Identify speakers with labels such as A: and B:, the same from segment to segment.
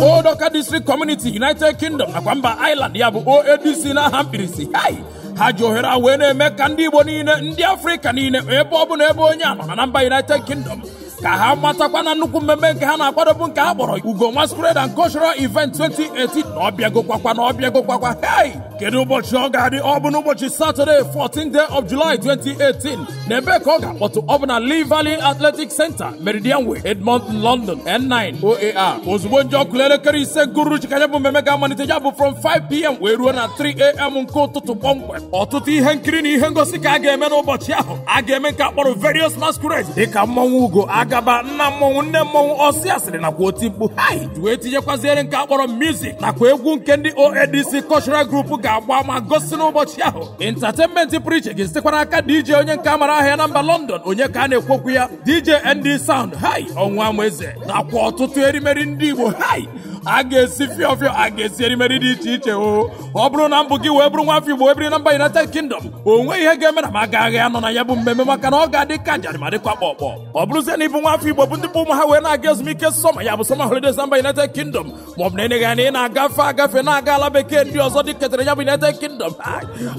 A: Odoka District Community United Kingdom nakwa mba Ireland ya bụ OADC n'aha mkpirisi ha ji ohere a wee na-eme ka ndị Igbo niile ndị Afrịka niile ebe ọ bụla ebe onye a na mba United Kingdom ka ha matakwa na nnukwu mmemme nke ha na-akwadobu nke ha kpọrọ Ugo nwa Masquerade and Cultural Event 2018 na ọbịagokwa na ọbịagokwa hey kedu ụbọchị ọ ga-adị ọ bụ n'ụbọchị Saturday 14 day of July 2018 na ebe ka ọ ga-akpọtụ ọ bụ na Lee Valley Athletic Center Meridian Way Edmond London N9 OAR ozugbo nje ọkụla elekere ise gụrụchi ka bụ mmemme ga-amalite ya bụ from 5pm wee ruo na 3am nke ụtụtụ kpọmkwem ọtụtụ ihe nkiri na ihe ngosi ka a ga-eme n'ụbọchị ahụ a ga-eme nke akpọrọ various masquerades dịka mmanwụ Ugo agaba nna mmọnwụ nne mmọnwụ ọsị asịrị nakwa oti mkpu hai wee tinyekwaziere nke akpọrọ mizik nakwa egwu nke ndị oadc cultural group ga-agba ma gosi n'ụbọchị ahụ entertainment pụrụ iche ga aka dj onye nke amara ahịa na mba london onye ka a na-ekwokwu ya dj nd sound hai ọnwa eze nakwa ọtụtụ erimeri ndị igbo hai a ga-esi fịọ fịọ a ga-esi erimeri dị iche iche o ọ bụrụ na mbụ gị wee bụrụ nwa afọ Igbo wee biri na mba United Kingdom o nweghị ihe ga-eme na m aga agha nọ na ya bụ mmemme maka na ọ ga-adị ka njarị ma dịkwa kpọkpọ ọ bụrụzie na ịbụ nwa afọ Igbo bụ ndị bụ ụmụ ha wee na-aga ezumike sọma ya bụ sọma holidays na mba United Kingdom ma ọ bụ na enyeghị ya na ị na-agafe agafe na-aga ala bekee ndị ọzọ dị ketara ya bụ United Kingdom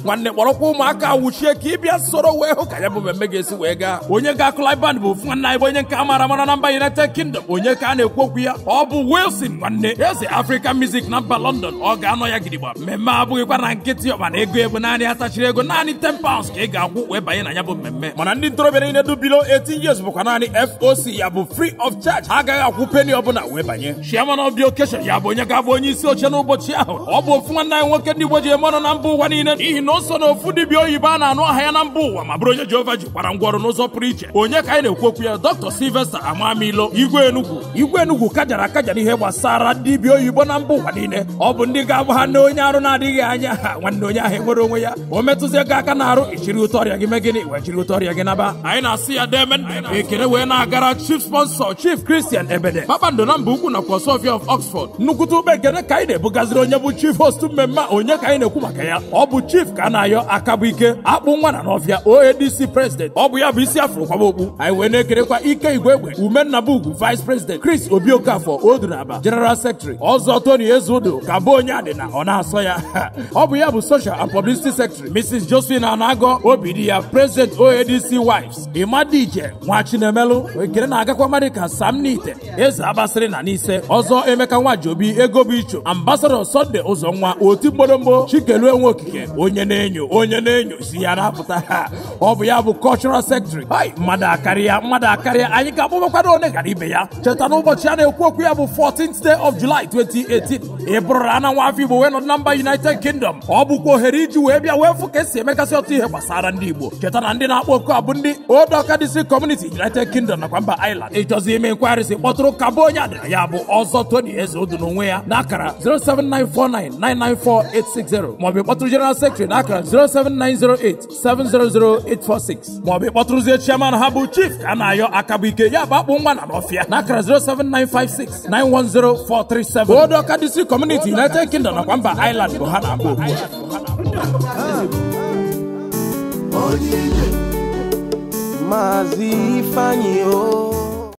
A: nwanne kpọrọkwa ụmụaka wuchie ka ịbịa soro wee hụ ka ya bụ mmemme ga-esi wee gaa onye ga-akụ live band bụ ofu nwanne anyị bụ onye nke a mara mara na mba United Kingdom onye ka a na-ekwu okwu ya ọ bụ Wilson nwanne eze African Music na mba London ọ ga-anọ ya gidigba mmemme abụghịkwa na nkịtị ọba ego ego naanị atachiri ego naanị 10 pounds ka ị ga-akwụ wee banye na ya bụ mmemme mana ndị ntorobịa niile dubilo 18 years bụkwa naanị FOC ya bụ free of charge ha agaghị akwụ penny ọbụla wee banye chairman of the ya bụ onye ga-abụ onye isi oche n'ụbọchị ahụ ọ bụ ofu nwanne anyị nwoke ndị Igbo ji eme na mba ụwa niile n'ihi na o na ofu dibịa oyibo a na-anụ aha ya na mba ụwa ma bụrụ onye Jehova jikwara ngwa ọrụ n'ụzọ pụrụ iche onye ka anyị na-ekwu okwu ya Dr. Sylvester Amamilo igwe enugwu igwe enugwu kajara akajara ihe gbasara dibịa oyibo na mba ụwa niile ọ bụ ndị ga-agba ha na onye arụ na-adịghị anya ha nwanne onye ahụ enwere onwe ya o metụzie gị aka na arụ ichiri ụtọ ọrịa gị mee gịnị wee jiri ụtọ ọrịa gị naba anyị na-asị ya demen ekele wee na-agara chief sponsor chief christian ebede kpakpando na mba ukwu nakwa sofia of oxford nnukwute ube ekele ka anyị na-ebugaziri onye bụ chief host mmemme onye ka anyị na-ekwu maka ya ọ bụ chief ka a na-ayọ aka bụ ike akpụ nwa na n'ọfịa oadc president ọ bụ ya bụ isi afro kwaba okpu anyị wee na-ekerekwa ike igwe egbe ume nnabugu vice president chris obi okafọ odu na aba general sektri ọzọ Tony Ezeudo ka bụ onye adịna ọ na-asọ ya ọ bụ ya bụ social and publicity secretary Mrs. Josephine Anagọ obi di ya president OADC wives Imadije Nwachinemelu ekele na-agakwa mmadụ ka Sam Nite eze abasịrị na n'ise ọzọ Emeka Nwajobi ego bụ icho ambasadọ Sunday Ụzọnwa otu mgboromgbo Chikelue okike onye na-enyo onye na-enyo si ya na-apụta ọ bụ ya bụ cultural secretary hai mmadụ akarịa mmadụ akarịa anyị ga-akpọbakwado one gara ibe ya cheta na ụbọchị a na-ekwu okwu ya bụ 14th day of Julaị 2018 ị bụrụrụ ananwụ afọ Igbo wee nọdụ na mba United Kingdom ọ bụkwa ohere iji wee bịa wee fụ ka esi emekasị ọtụ ihe gbasara ndị Igbo cheta na ndị na-akpọ oku abụ ndị Old Awka District Community United Kingdom nakwa mba Ireland ịchọzi ime nkwagharị si kpọtụrụ ka bụ onye adịra ya bụ ọzọ Tony Eze Odu onwe ya n'akara 07949994860 maọbụ ịkpọtụrụ General Secretary n'akara 07908700846 maọbụ ịkpọtụrụzie chairman ha bụ Chief ka a na-ayọ aka bụ ike ya bụ akpụ nwa na n'ọfịa n'akara 079569104 437 Odoka DC Community United Kingdom na kwamba Ireland bụ ha na